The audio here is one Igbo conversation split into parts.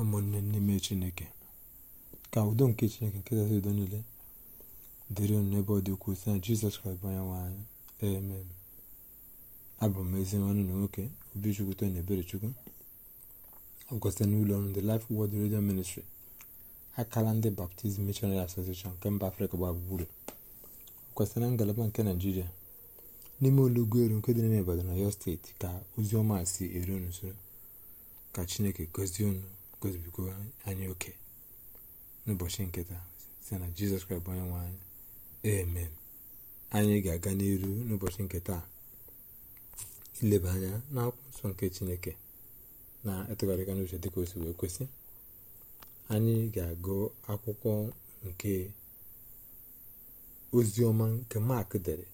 ụmụnne n'ime chineke ka udo nke chineke nke kasị udo niile dịrị nụ n'ebe ọ dị ukwuu na jizọs kraịst bụ onye nwaanyị anyị amen abụ m ezi nwanne na nwoke obichukwu tony eberechukwu ọgụkọ site n'ụlọ ọrụ ndị Life Word Radio Ministry akala ndị Baptist Missionary Association nke mba afrịka gbaa gburugburu kwesịrị na ngalaba nke naijiria n'ime ụlọ ugwu elu nke dị n'ime na yo steeti ka ozi ọma si eru n'usoro ka chineke gọzie unu gozibigo anyị oke n'ụbọchị nke taa site na jizọs kraịst bụ onye nwe anyị amen anyị ga-aga n'iru n'ụbọchị nke taa ileba anya na akwụkwọ nke chineke na-etụgharịga n'uche dịka o si wee kwesị anyị ga-agụ akwụkwọ nke oziọma nke mak dere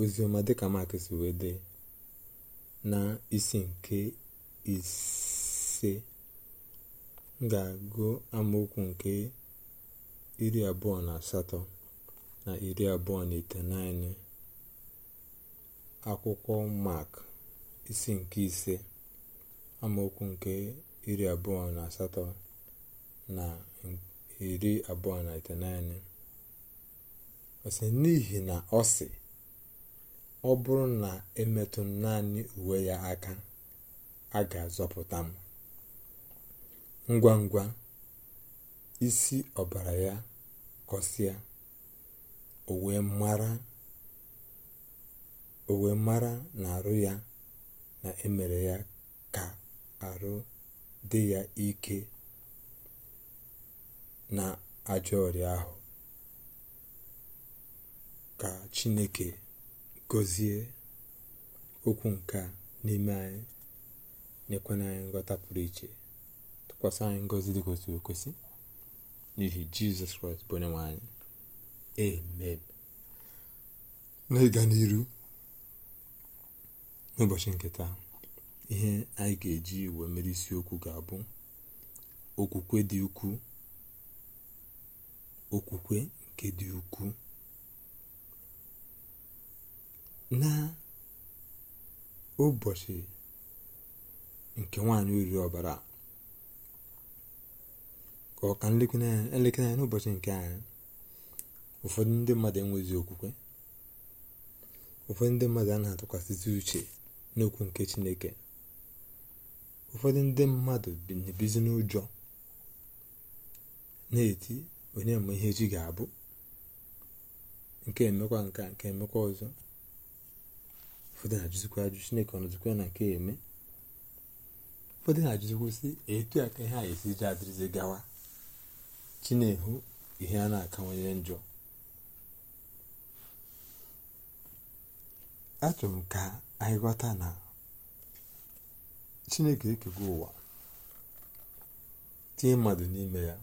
oziọma dịka mak si wee dee na isi nke isi ise ga-agụ amaokwu nke iri abụọ na asatọ na iri abụọ na iteghete akwụkwọ mak isi nke ise amaokwu nke iri abụọ na asatọ na iri abụọ na iteghete ọ sị n'ihi na ọ sị ọ bụrụ na emetụ naanị uwe ya aka a ga-azọpụta m ngwa ngwa isi ọbara ya kọsịa o wee mara na arụ ya na emere ya ka arụ dị ya ike na ajọ ọrịa ahụ ka chineke gọzie okwu nke n'ime anyị nyekwana anyị nghọta pụrụ iche tụkwasị anyị ngọzi dị kwesịrị ekwesị n'ihi jizọs kraịst bụ onye nwe anyị amen n'ịga n'iru n'ụbọchị nke taa ihe anyị ga-eji wee mere isiokwu ga-abụ okwukwe dị ukwuu okwukwe nke dị ukwuu na ụbọchị nke nwaanyị oriri ọbara ka ọ ka nlekere anya elekere anya n'ụbọchị nke anyị ụfọdụ ndị mmadụ enwezi okwukwe ụfọdụ ndị mmadụ a na-atụkwasịzi uche n'okwu nke chineke ụfọdụ ndị mmadụ na-ebizi n'ụjọ na-eti onye ma ihe echi ga-abụ nke emekwa nka nke emekwa ọzọ ụfọdụ na-ajụzikwa ajụ chineke ọ nọzikwa na nke eme ụfọdụ na-ajụzikwa sị etu a ka ihe a esi ji adịrịzi gawa chineke ihe a na-akawanye njọ achọrọ m ka anyị ghọta na chineke ekego ụwa tinye mmadụ n'ime ya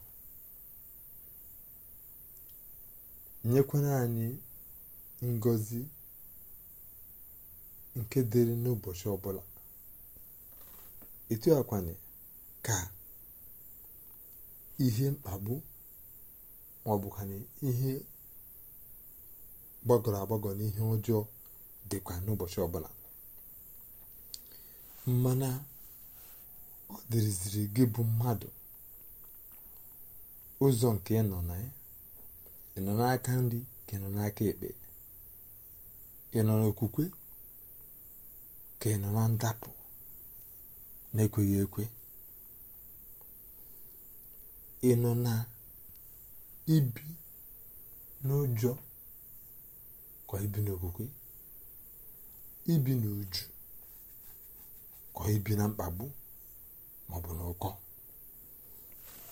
nyekwana anyị ngozi nke dịrị n'ụbọchị ọbụla etu akwanye ka ihe mkpagbu na ihe gbagọrọ agbagọ na ihe ọjọọ dịkwa n'ụbọchị ọbụla mmanụ ọ dịrịziri gị bụ mmadụ ụzọ nke ị nọ na ya ị nọ n'aka nri ka ị nọ n'aka ekpe ị nọ n'okwukwe ka ị nọ na ndapụ na-ekweghị ekwe ị nọ na ibi n'ụjọ kwa ibi n'okwukwe ibi n'uju kwa ibi na mkpagbu maọbụ n'ụkọ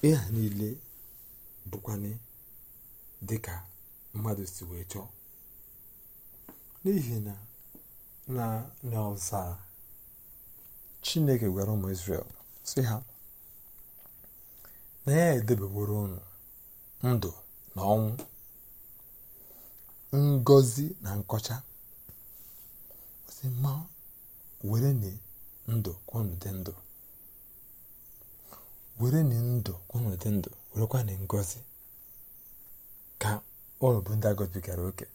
ịha niile niile dị dịka mmadụ si wee chọọ n'ihi na na n'ọzara chineke gwara ụmụ Israel sị ha na ya edebeworo unu ndụ na ọnwụ ngozi na nkọcha si ma were ni ndụ kwanu dị ndụ were ni ndụ kwanu dị ndụ werekwa na ngozi ka ụlọ bụ ndị agọbigara oke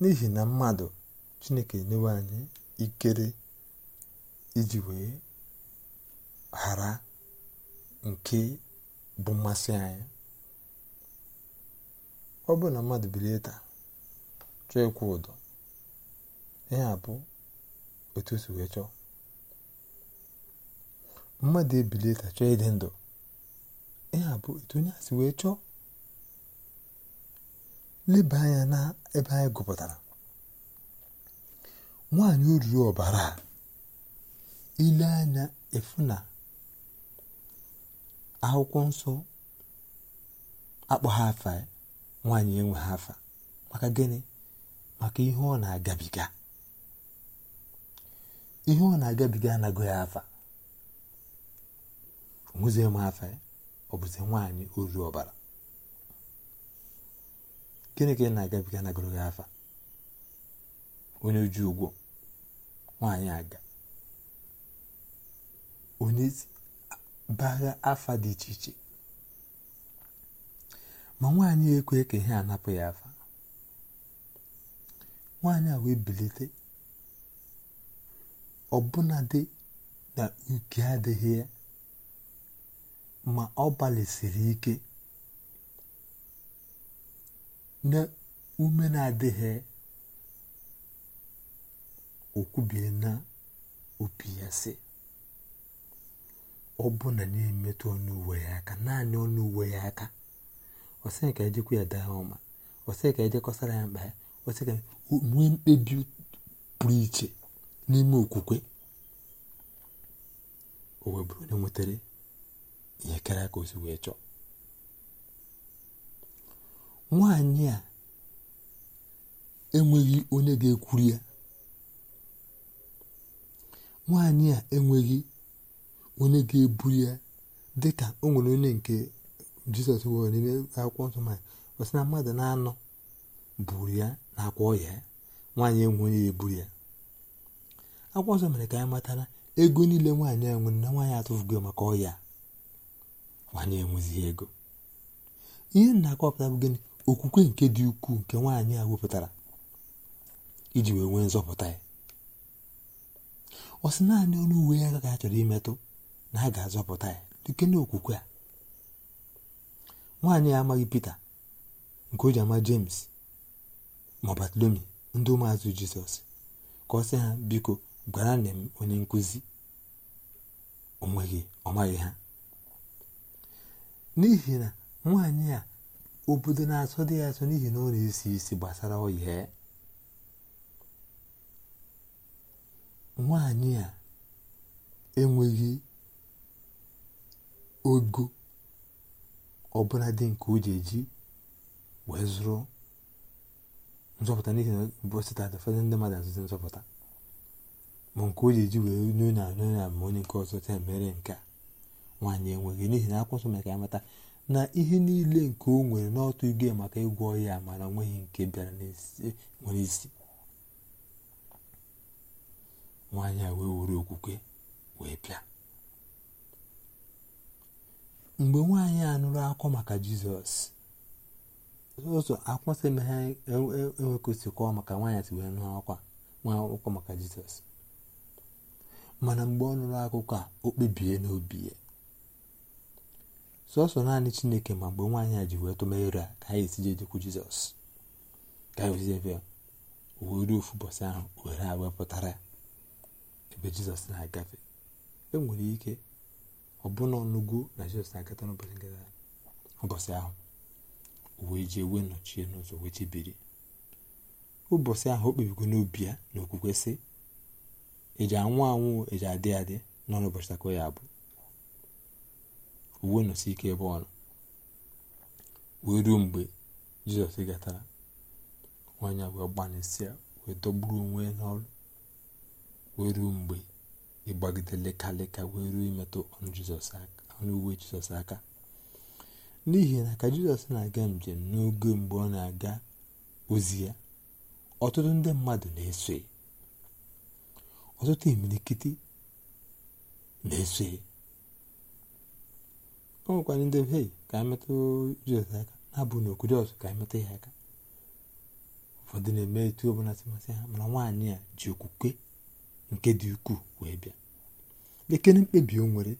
n'ihi na mmadụ chineke enyewe anyị ikere iji wee ghara nke bụ mmasị anyị ọ bụrụ na mmadụ bilie taa chọọ ịkwụ ụdọ ihe a bụ otu si wee chọọ mmadụ ebilie taa chọọ ịdị ndụ ihe a bụ etu onye a si wee chọọ leba anya na ebe anyị gụpụtara nwaanyị oriri ọbara ile anya efu na akwụkwọ nsọ akpọ ha afa nwaanyị enwe ha afa maka gịnị maka ihe ọ na-agabiga ihe ọ na-agabiga anago ya afa nwụzie m afa ọ bụzi nwaanyị ozu ọbara gịnị ka ị na-agabiga anaghị ya afa onye oji ụgwọ nwaanyị aga onye bagha afa dị iche iche ma nwaanyị ekwe ka ihe anapụ ya afa nwaanyị a wee bilite ọbụnadị na uke adịghị ya ma ọ gbalịsiri ike na ume na-adịghị okwubie na opi ya si. ọ bụ na na-emetụ ọnụ uwe ya aka naanị ọnụ uwe ya aka ọsị ka ejekwa ya daa ọma ọsị ka ejekọsara ya mkpa ya ọsị ka nwee mkpebi pụrụ iche n'ime okwukwe o wee bụrụ onye nwetara ihe karịa ka o si wee chọọ nwaanyị a enweghị onye ga-ekwuru ya nwaanyị a enweghị onye ga-eburu ya dịka o nwere onye nke jizọs nwere n'ime akwụkwọ nsọ ma ọ sị na mmadụ na-anọ buru ya na akwa ọya ya nwaanyị enwe onye eburu ya akwụkwọ nsọ mere ka anyị matara ego niile nwaanyị enwe na nwaanyị atụfugo maka ọya nwaanyị enwezighị ego ihe na-akọpụta bụ gịnị okwukwe nke dị ukwuu nke nwaanyị a wepụtara iji wee nwee nzọpụta ya ọ sị naanị ọnụ uwe ya ka a chọrọ imetụ na a ga-azọpụta ya dike n'okwukwe a nwaanyị ya amaghị Pita nke o ji ama James ma Batlomi ndị ụmụazụ Jizọs ka ọ sị ha biko gwara nne m onye nkụzi onweghị ọ maghị ha n'ihi na nwaanyị a obodo na-asọ dị ya asọ n'ihi na ọ na-esi isi gbasara ọya ya nwaanyị a enweghị ogo ọbụla dị nke o ji eji wee zụrụ nzọpụta n'ihi na bụsịta ndị mmadụ azụzi nzọpụta ma nke o ji eji wee n'onye na onye na ma onye nke ọzọ ta mere nke a nwaanyị enweghị n'ihi na akwụsị ka ya mata na ihe niile nke o nwere n'ọtụ igwe maka ịgwọ ya na onweghị nke bịara nwere isi nwaanyị a wee were okwukwe wee bịa mgbe nwaanyị a nụrụ akụkọ maka jizọs ụzọ akwụkwọ sị na ha enwekọsikwa e, e, e maka nwaanyị si wee nụ akwa nwa akwụkwọ maka jizọs mana mgbe ọ nụrụ akụkọ a o kpebie n'obi ya sọsọ naanị chineke ma mgbe nwaanyị a ji wee tụmere a ka anyị esi jedekwu jizọs ka anyị osiebe were ofu ahụ were a wepụtara ebe jizọs na-agafe enwere ike ọbụna ọnụgo na jizọs agata akata nke nketa ụbọchị ahụ wee jee wee nọchie n'ụzọ wee chebiri ụbọchị ahụ o kpebigo n'obi ya na okwukwe sị eji anwụ anwụ eji adị adị nọ n'ụbọchị takọ ya bụ uwe nọsi ike ebe ọ nọ wee ruo mgbe jizọs gatara nwaanyị wee gbanịsịa wee dọgburu onwe n'ọrụ wee ruo mgbe ịgbagide leka leka wee ruo imetụ ọnụ uwe jizọs aka n'ihi na ka jizọs na-aga njem n'oge mgbe ọ na-aga ozi ya ọtụtụ ndị mmadụ na-eso ọtụtụ imilikiti na-eso ya ndị hei ka emetụ jizọs aka na-abụ n'okwudo ọzọ ka emetụ ya aka ụfọdụ na-eme etu ọbụla si masị ha mana nwaanyị a ji okwukwe nke dị ukwuu wee bịa ekene mkpebi o nwere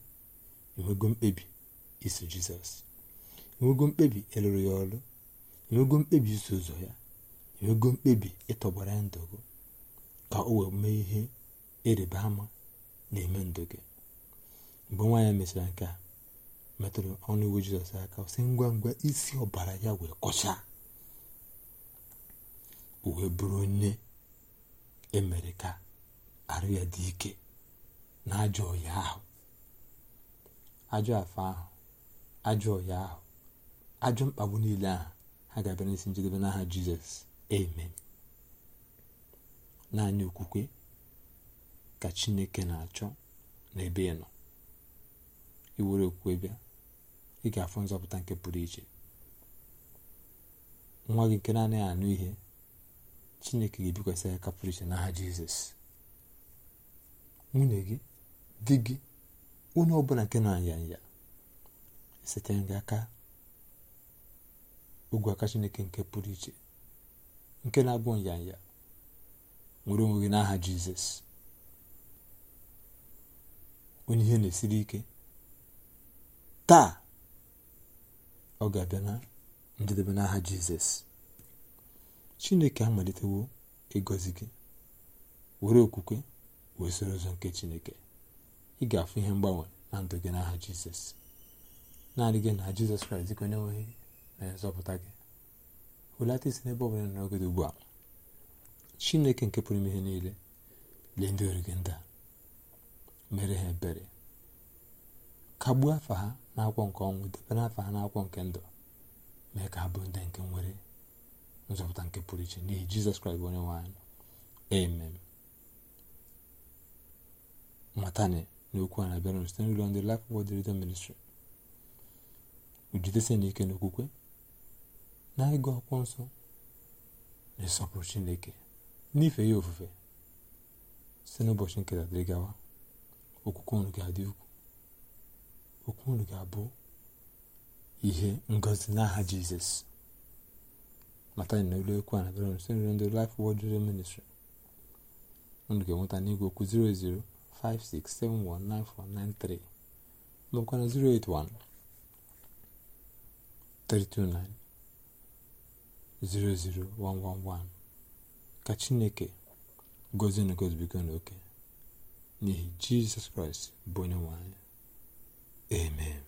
mkpebi iso jizọs enwego mkpebi ịlụrụ ya ọrụ enwego mkpebi iso ụzọ ya enwego mkpebi ịtọgbara ya gị ka o wee mee ihe ịrịba ama na-eme ndụ gị mgbe nwa ya mechara nke a metụrụ ọnụ iwu jizọs aka si ngwa ngwa isi ọbara ya wee kọchaa o wee bụrụ onye emere ka arụ ya dị ike na ajọ ọya ahụ ajọ afọ ahụ ajọ ọya ahụ ajọ mkpagbu niile ahụ ha ga-abịa isi njedebe n'aha jizọs amen naanị okwukwe ka chineke na-achọ n'ebe ị nọ iwere okwukwe bịa ị ga-afụ nzọpụta nke pụrụ iche nwa gị nke na-anaghị anụ ihe chineke ga-ebikwasị ya kapụrụ iche n'aha jizọs nwunye gị di gị onye ọbụla nke na anya ya setara gị aka ogwe aka chineke nke pụrụ iche nke na-abụ nyanya nwere onwe gị n'aha jizọs onye ihe na-esiri ike taa ọ ga-abịa na njedebe n'aha jizọs chineke amalitewo ịgọzi gị were okwukwe wee soro ụzọ nke chineke ị ga-afụ ihe mgbanwe na ndụ gị n'aha jizọs naanị gị na jizọs kraịst gị onye nweghị na-ezọpụta gị hulata isi n'ebe ọbụla n'oge dị ugbu a chineke nke pụrụ ime ihe niile lee ndị ori gị ndị a mere ha ebere kagbuo afa ha na akwọ nke ọnwụ debe afọ ha na akwọ nke ndụ mee ka ha bụ ndị nke nwere nzọpụta nke pụrụ iche n'ihi jizọs kraịst onye nwe amen matani n'okwu a na-abịara site n'ụlọ ndị Life Word Radio Ministry ujidesie n'ike n'okwukwe na ịgụ akwụkwọ nsọ na ịsọpụrụ Chineke n'ife ya ofufe site n'ụbọchị nketa dịrị gawa okwukwe unu ga-adị ukwu okwu unu ga-abụ ihe ngozi n'aha Jizọs mata na ụlọ ekwu a na-abịara site n'ụlọ ndị Life Word Radio Ministry unu ga-enweta n'igwe okwu 00 08056719493 maọbụ na 081 329 ka Chineke gozie na gozibigo n'oke n'ihi Jizọs Kraịst bụ onye nwanyị anyị amen